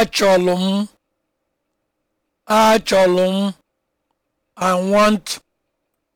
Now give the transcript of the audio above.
Achọlụ m, m, I want